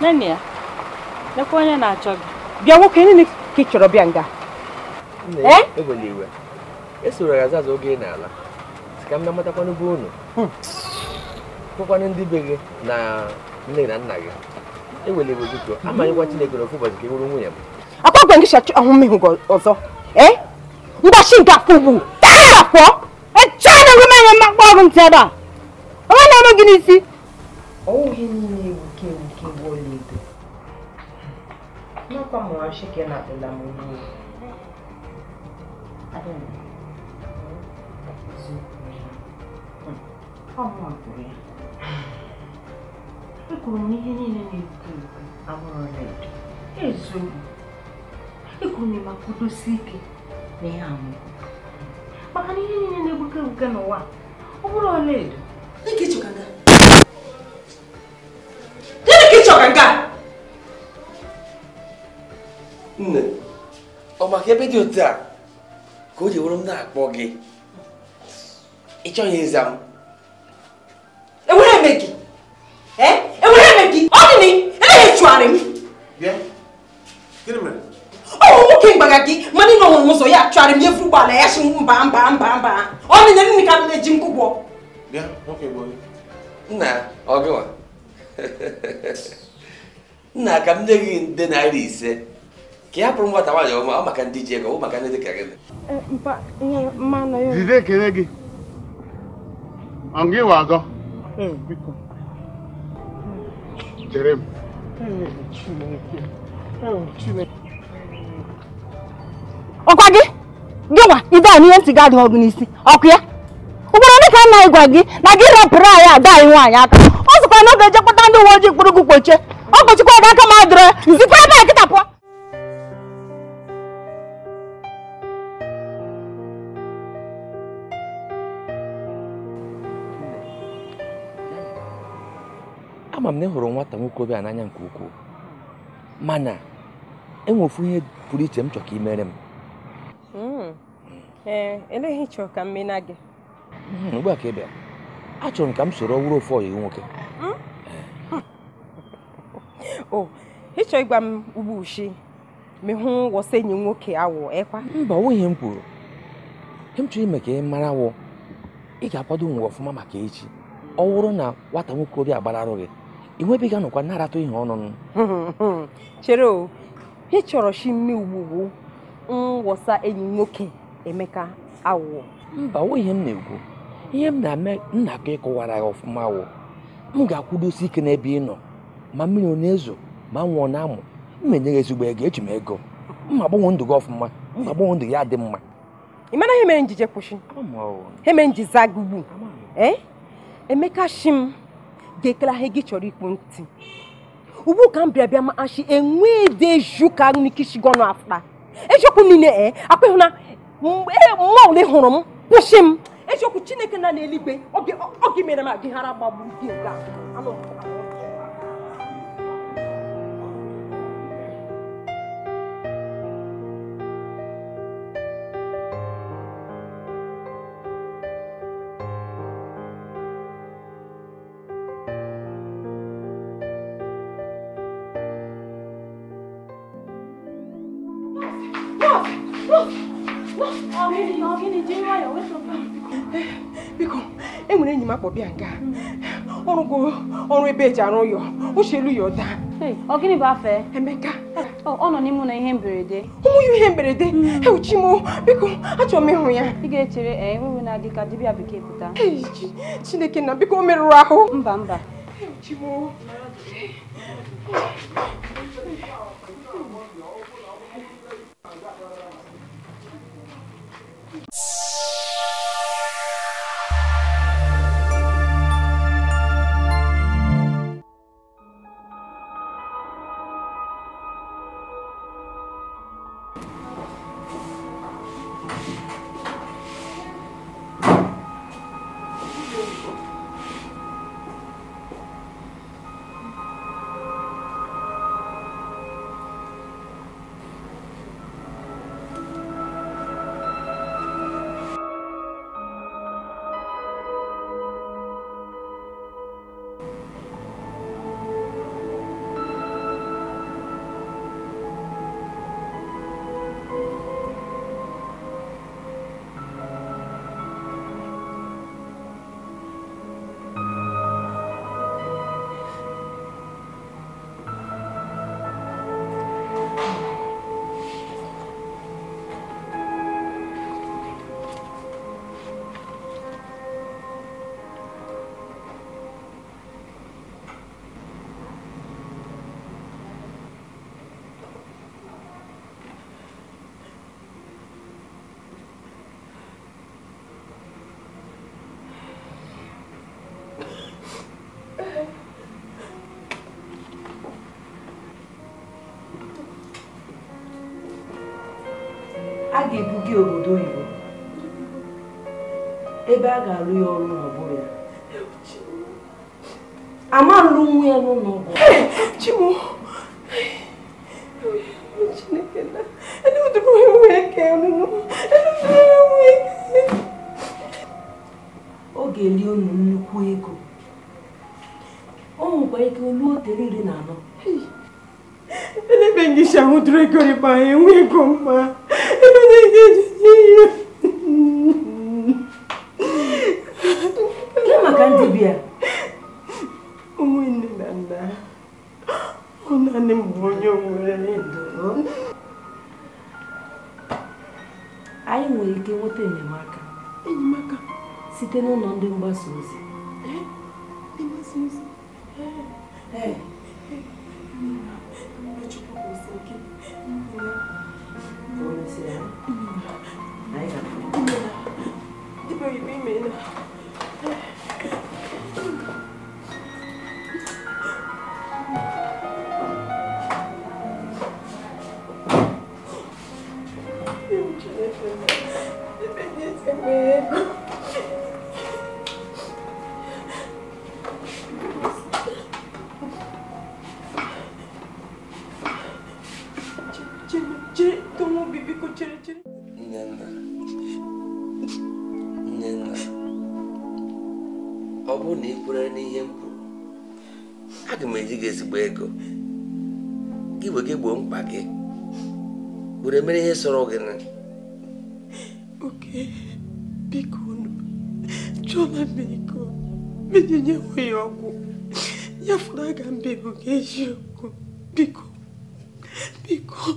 Nene ya, lekwa onye na-achọ gị. Bịa nwoke nne ka eh? ị chọrọ bịa nga. Ewele iwe. Esoro ya azaza oge ị na-ala. Si ka m na-amatakwanụ bụ unu. Fụkwanụ hmm. ndị be gị na nne na nna gị. Ewele iwe biko, amanyekwa Chineke n'ofu ụbọchị ka ị e bụrụ nwunye m. Akwa gwa gị shachi ahụ mmehụ ọzọ. Mgbachi eh? Ngwachi nke akwụgbu. Taa afọ, Echaa na-enwe m enye mmakpa ọrụ ntị ebe a. Onye na-eme gị n'isi? Ọwụghị niile como acha que ela tem da mulher? ya. niile na na edo. na ma ike na Maka na ihe niile na-ebuka n'ụwa ọ bụrụ ọla edo. nne ọ maka ebe dị otu a ka o ji wụrụ m na-akpọ gị ị chọghị ịza m enwere eme gị enwere eme gị ọ dị na nwoke mgbaga gị mana ị nọhụrụ m ụzọ ya chụarị m efu ụgbọala ya si mba mba mba mba ọ nịnya nne ka m na-eji m kwụgwọ nna ọgịwa nna ka m nye gị nde naira ise ka ị hapụrụ nwata nwaanyị ọma ọ maka ndị ji ego maka ndị dị ka gị zize ekele gị ịwa ọkwa gị a n'ihe ọgụ n'isi ọkụ ya ugboro ndị ka nna gwa gị na gị rapụrụ anyị ada anyị nwaanyị aka ọ sịkwa na ọ ga-eje kpata ndị uwe ojii kpụrụ gị kpochie ọ kpochikwa gị aka ma adịrọ zikwa ebe a kịta pụọ ama m na ị hụrụ nwata a n'anya nke ukwuu mana enwe ofu ihe pụrụ iche m chọrọ ka ị mere m hmm. ee eh, eleghị chọrọ ka m mena gị hmm, ugbu a ka ị bịa achọrọ m ka m soro ọwụrụ ofu ọyị nwoke hmm? eh. o oh, ịchọ ịgwa m ugbu ushi ma hụ wọsa enyi nwoke awụ ekwa mba ọ nwụghị m kwuru ihe m chọrọ ime ka ị mara wụ ị ga-akwado nwe ọfụma maka echi ọ wụrụ na nwata nwokorobịa gị. ị nwebeghị nọkwa na-aratụ ihe ọnụnụ chere o ị chọrọ chi mme ugbugbu ngwọsa enyi nwoke emeka awụọ mba o ihe m na-ekwu ihe m na-eme nna ka ịkọwara ya ọfụma wụ m ga-akwụdosi ike n'ebe ị nọ ma mmiri ọ na-ezo ma m nwụọ na-amụ m enye ezigbo ego eji m ego mma agbanwe ndụ gị ọfụma mma agbanwe ndụ ya dị mma ị mara ihe mere njije kwụsị ihe mere gị ugbu, eh? emeka shi m ga dekelaha gị chọrọ ikpu ntị ugbu ka m bịa bịa ma achị enwe eju ka nikishigonụ afta ejiokwu niile e akpịhụ na mma ole hụrụ m kwụsị m ejiokwu chineke na n'eluigwe oge mere m agịghara gbagbu gị nga anụ m akpọbịa nke ọrụgo ọrụ ebe eji arụ ụyọ ochelu ya ụda ọ gịnị bụ afọ Emeka ọ nọ n'ime ụlọ ihe mberede ụmụ ya ihe mberede hmm. ewuchi m biko achọrọ m ịhụ ya ị ga-echere enweghị eh, na-adị ka dibịa bekee pụta Chineke na biko o merụrụ ahụ mba mba ewuchi m a ga-ebuga obodo oyibo ebe a ga-alụ ya ọrụ n'ọgbọ ya ama lụ nwa ya n'ụlọ ọgwụ chimu chineke na eluduru enwe eke ọnụnụ eluduru enwe eke ọ ga-eli unu nnukwu ego o nwekwa ike olu otere iri na anọ elebe ngịcha hụdụrụ ego rịba enwe ego mma Ihe maka ndị bịa? Ụmụnne na nna ọ m bụ onye nwere ndụ. Anyị nwere ike nweta enyemaka enyemaka site n'ụlọ ndị mgbasa ozi. Thank you. 来一个，一杯一杯的。ọ bụrụ na ị kwere n'ihe m kwuru aga m eji gị ezigbo ego gị bụ gị gboo mkpa gị were mere ihe sọrọ gị na oke biko chọọma nyewe ya ọgwụ ya fụrụ aga bụ ga eziokwu biko biko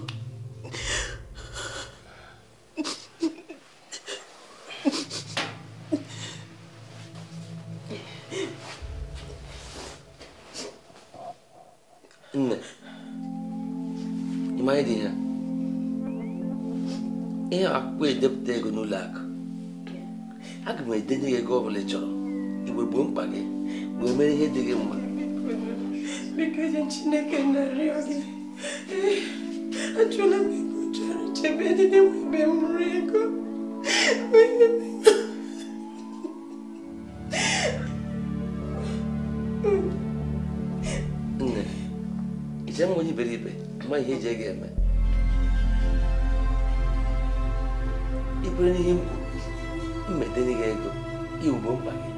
ahụ edenye gị ego bụla ị chọrọ igwe gboo mkpa gị wee mere ihe dị gị mma nne m onye iberibe ma ihe eji ga-eme n'ihe mmetenega ego igbo mkpa gị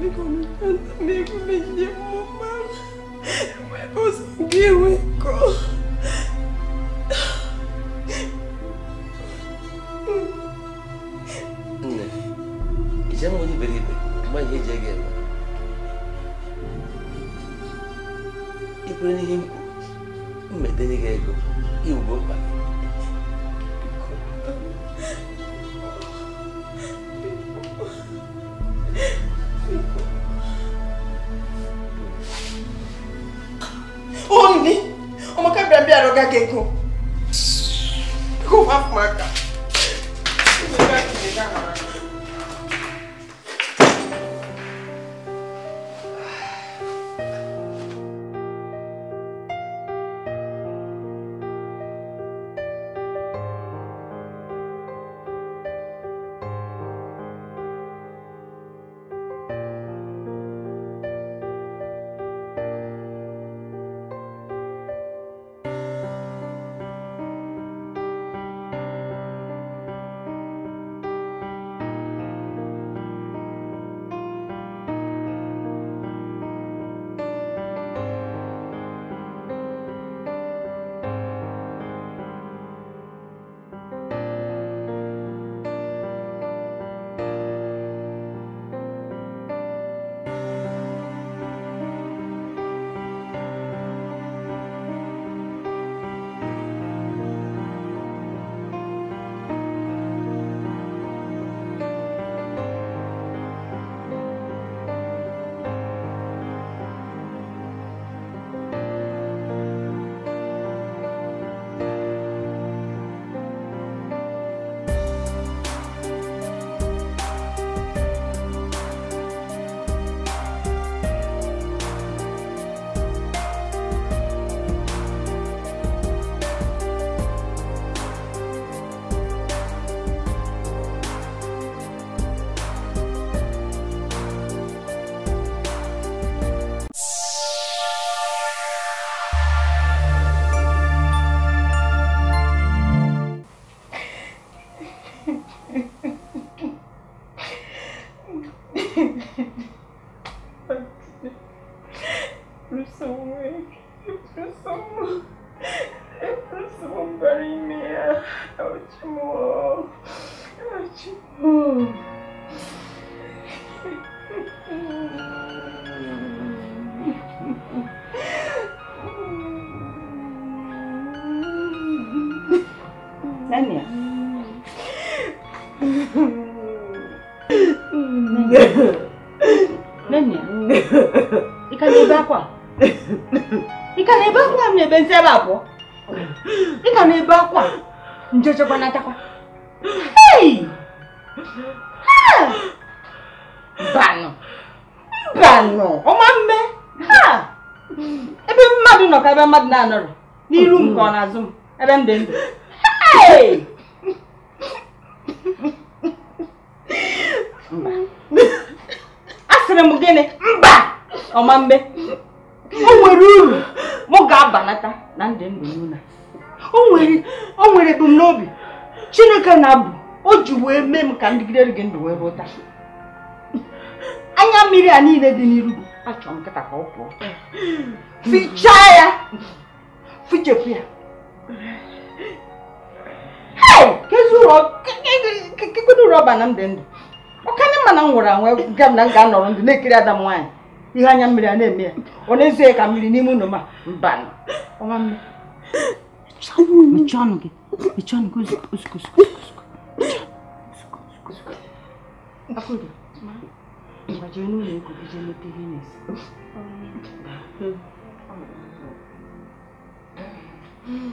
biko nata m ego mejide mmụmma wepụ ụzọ gị enwe nkọ nne iche m onye iberibe mgbe ihe eji ego eme ikwere n'ihe m kwuru mmetenega ego igbo mkpa gị bɛn bi a dɔ ka kɛ kun 何や何やいかな -ebe akwa ka na-ebe akwa m na-ebe nsị ebe abụọ ị ka na-ebe akwa nje chekwa natakwa hei banụ banụ ọma mme ha ebe mmadụ nọ ka ebe mmadụ na-anọrọ n'iru m ka ọ na-azụ ebe m ndụ Hey! asịrị m gịnị mba ọma mbe o nwere uru ọ ga-abalata na ndị ndụ n'ụlọ o nwere ebumnobi chineke na-abụ o ji wee mee m ka ndịgidere gị ndụ wee rụta anya mmiri a niile dị n'iru gị achọ m nkịta ka ọ pụọ fichaa ya fichepụ ya kekedu ụrụ ọba na m dị ndụ ọkana mma na m nwụrụ anwụ ga m na m ga-anọrọ ndụ na-ekiri ada m nwaanyị ihe anya mmiri a na-eme ya ọ na-ezie ka mmiri n'ime ụlọ ma mba mechie ọnụ gị mechie ọnụ gị gbajiri n'ụlọ ego gị jee mete ihe na-esi Mm.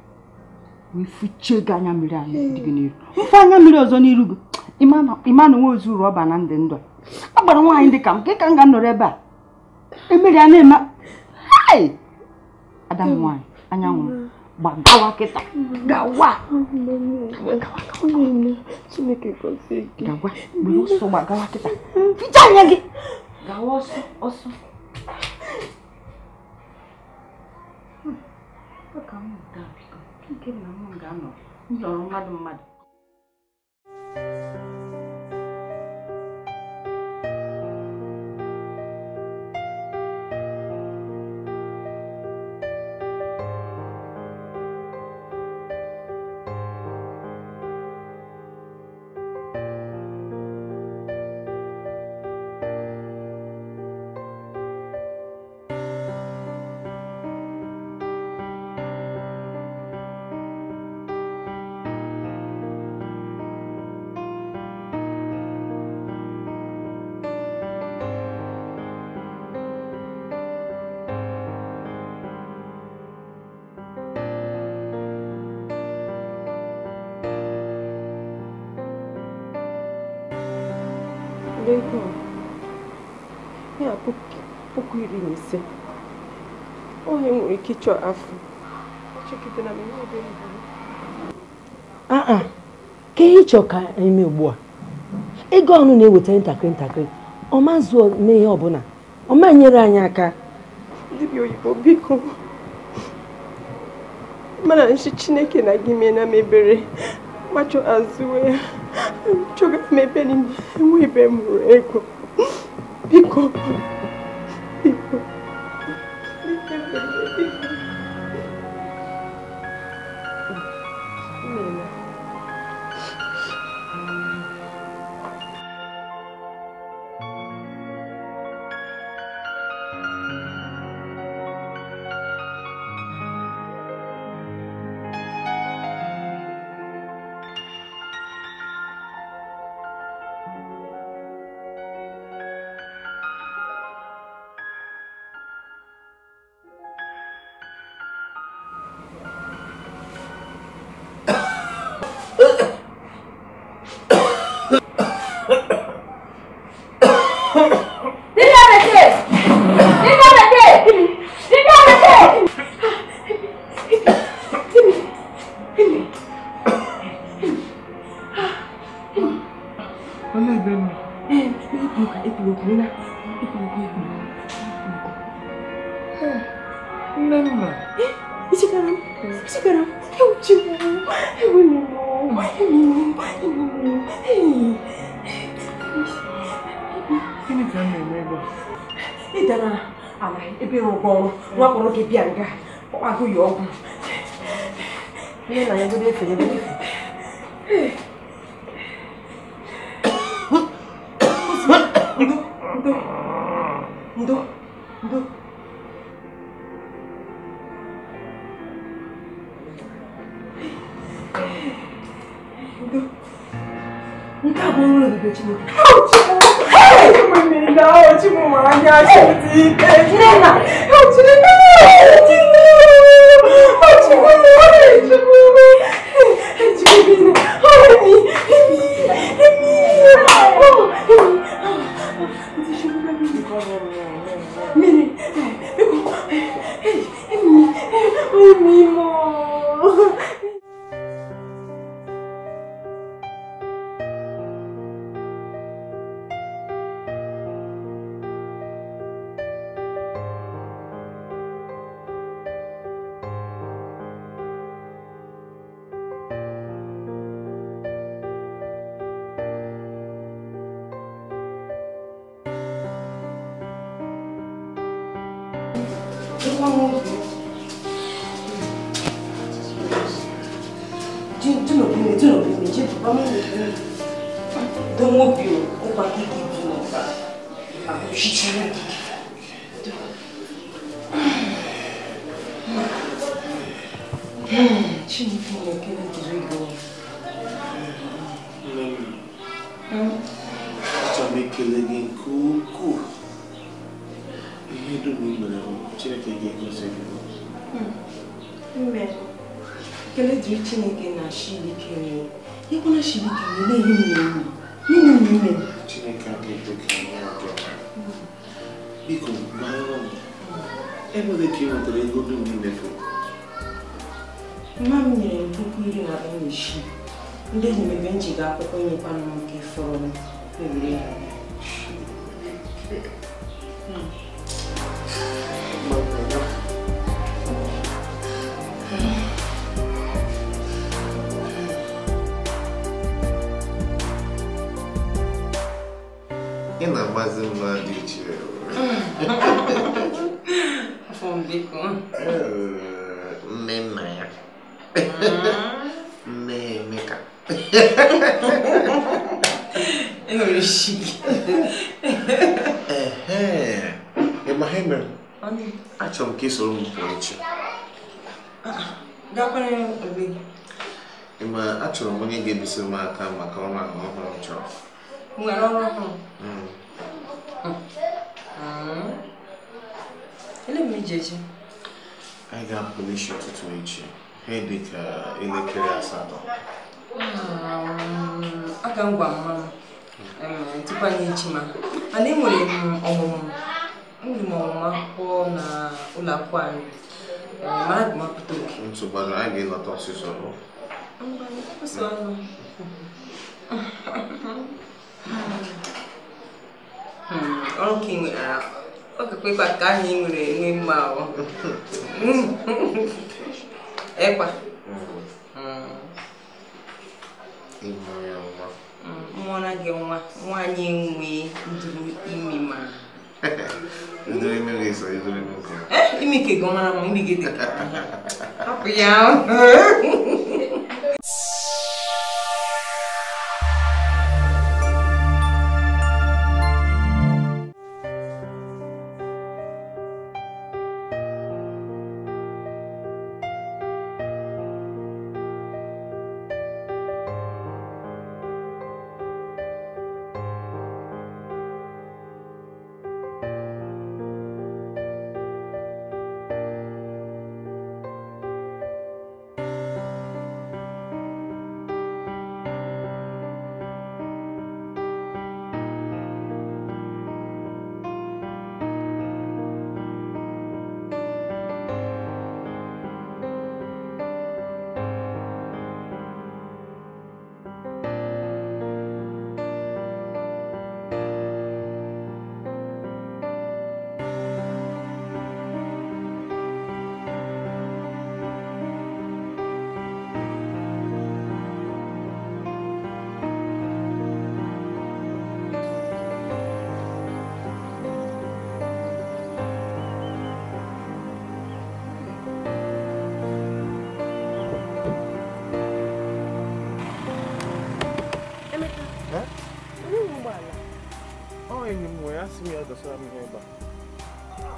ifuchego hmm. anya mmiri hmm. anya dị n'iru mfe anya mmiri ọzọ n'iru gị ịma na nwe ozu rọba na ndị ndụ a gbara nwaanyị dị ka m nke ka m ga nọrọ ebe a emeri a na-eme ada m nwaanyị anyanwụ gbagawa kịta hmm. gawa gawa gburu ọsọ gbagawa kịta ficha anya gị gawa ọsọ ọsọ Look, I'm done. na m ga-anọ m jọrọ mmadụ mmadụ ego ya puku iri na ise onye nwere ike ịchọ afọ aa ka ihe ịchọ ka eme ugbu a ego ọnụ na-eweta ntakịrị ntakịrị ọ ma zuo mee ihe ọbụla ọ ma nyere anyị aka dibịa oyibo biko mana nchi chineke na gị mee na mebere gbachọ azụwe ya Çok mepere ndị enwe ibe m ruru ego. Biko. Lubrina, Lubrina, Nenna. Ichikaram, Ichikaram, eu te amo, eu amo, eu amo, eu Gịnị ka m na-eme ebe Ị dara ala ebe ịrụkọ ọrụ nwa kpọrọ gị bịa nga ọkpagụ ya ọgwụ. Ihe na ya ebe efe ebe efe. ẹgbẹ́ tí mo dé. Ẹ ẹ́ mo ní náà ojú mo máa ń tu no bi mi tu no bi mi je papa mi do mo bi o o pa ki ki tu no pa ma ko shi shi na ki Ci mi tu no ke na ki zo go Mami Hmm Cha mi ke le gin ku ku Ihe do mi mo na o Chineke gin ko se go Hmm Mbe ekele chineke na shilike nri ịkwụna shilike na-ehi na enyi ime biko gbarụrụ m ka ị nwetara ego dum imefu mma m nyere m puku iri na abụọ na isii ndị enyemebe njiga akwụkwọ nyekwana m nke fọrọ m na-agbazi mma dị iche mme nna ya nne Emeka enwere shi ịma ha achọrọ m ka ị soro m echi ịma achọrọ m onye ga-ebisiri m aka maka ọrụ ahụ ọhụrụ m chọrọ ele m ije echi anyị ga-apụ n'isi ụtụtụ echi ha dị ka elekere asatọ aga m gwa mma m tupu anyị echi ma mana enwere m ọmụmụ enwere m ọmụmụ akwụkwọ na ụlọ akwụkwọ anyị mara agụmapụta oke ntụgbara anyị ga-elọta ọsịsọ Mba, ọsọ ọnụ Hmm, ọrụ ka ị nwere ọkụkọ ịkwa ka ahụ nwere enwe mma ahụ ịkwa hmm. hmm, na gị nwa nwaanyị nwe nduru imi ma imi gị eh, mara ma imi gị dị hapụ ya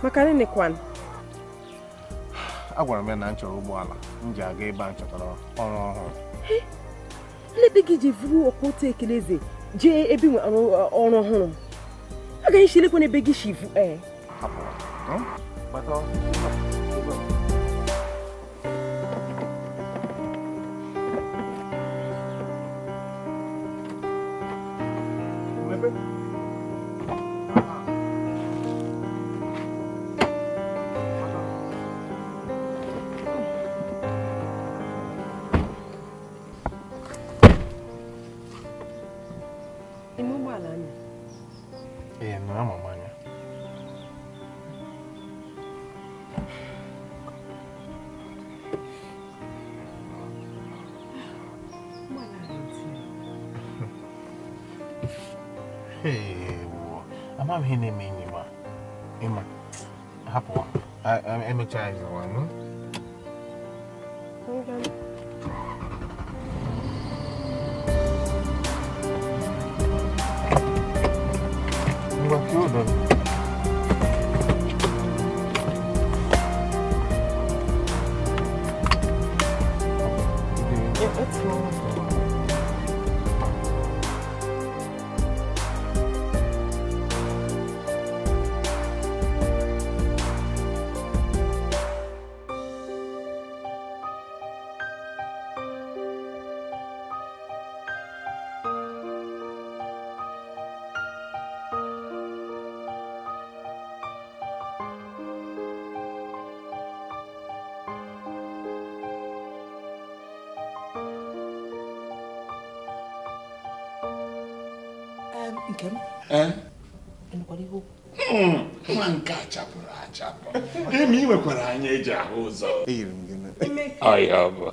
maka nini kwan agwara m ya na m chọrọ ụgbọala m ji aga ebe a ọrụ ọhụrụ nlebe gị ji vuru ọkwa otu ekeleze jee ebe nwe uh, ọrụ ọhụrụ agaghị chilekwa ebe gị shivu ee eh? hinne mimi ma ima hapo am amechaiza wanu nke Ị hmm, nwa nke a achapụ emi ị nwekwara anya eji ahụ ụzọ m gị ọhịa ọ bụ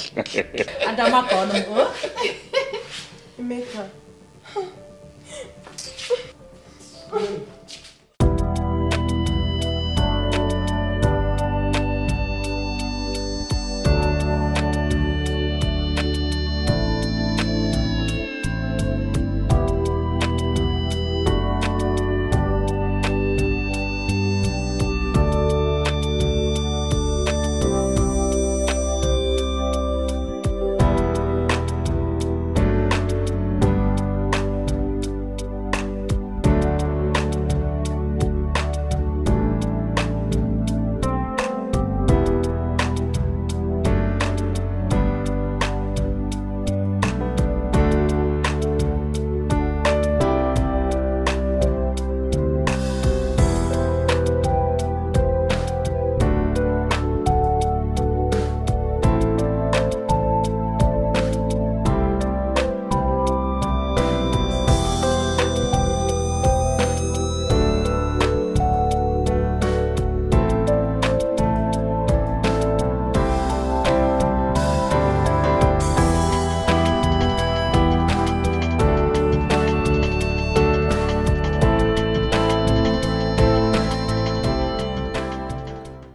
adamaka ọnụ